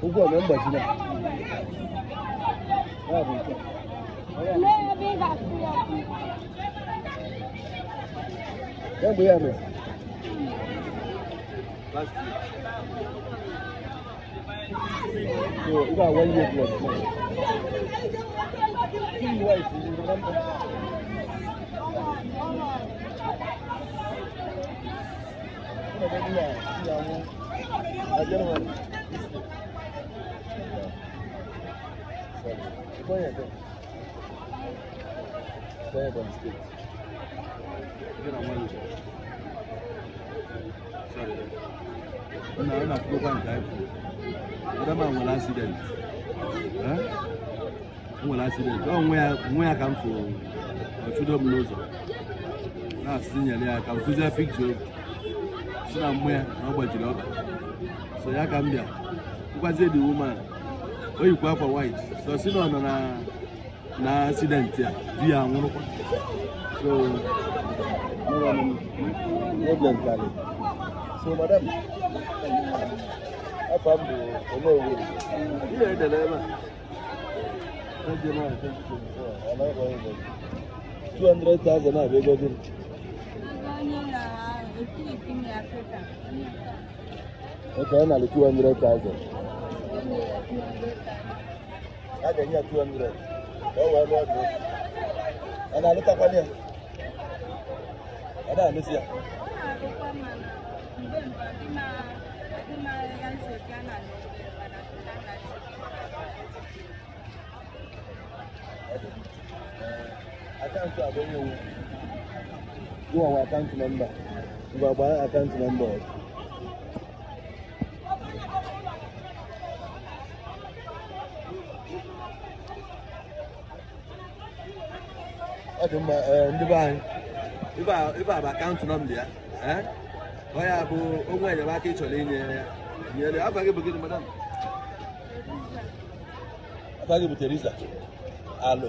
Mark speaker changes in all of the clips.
Speaker 1: Huku wamemba jina. Yangu yame. So, you got one year left. Two wives, you remember? nwe ya ka m fụrụ ọchụdo m n'ụzọ na-asị nyere ya ka m kụzie pikcha si na mmụọ ya na ọ gbajiri ọka so ya ka m bịa nkwazie dị woman o yikwa akwa white so si na ọ nọ na na accident ya di ya nwụrụkwa. so madam 200,000 Okay, yana da 200,000. Haka yi a 200. Yawon wani wani. Ana halitta kwaniya? Ana halitta. Thank you. akaụntụ abụghị iwu gụwawa akaụntụ nọmba ngwa gbara akaụntụ nọmba ọzọ ọ dị mma ndị be anyị ịba a bụ akaụntụ nọmba ya ọ eh, ya eh? bụ onwe enyemaka ị chọrọ inye ya nyere afa gị bụ gịnị madam afa gị bụ teresa alụ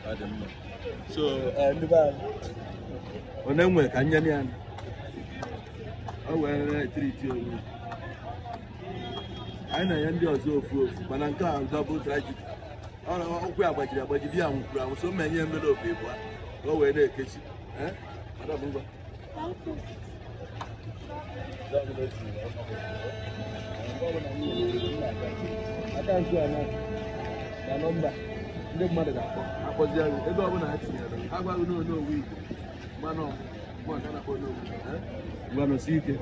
Speaker 1: ọ so eh, ndị onye nwe ka nye ya o were triti onwe anyị na-enye ndị ọzọ ofu ofu mana nke a dọbụl trajik ụkwụ ya gbajiri agbaji di ya nwụkwuru anwụ so mma enye mmere obi bụ ka o wee na-ekechi na eh? you. ndị mmadụ ga-akpọzi akpọ anyị ebe ọbụla ha tinyere agwaghị n'onye owu igbo mana ọmụma nke na-akpọ onye owu eh? gwanụsi ike